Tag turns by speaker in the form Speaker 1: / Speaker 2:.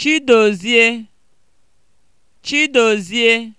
Speaker 1: Chidozie Chidozie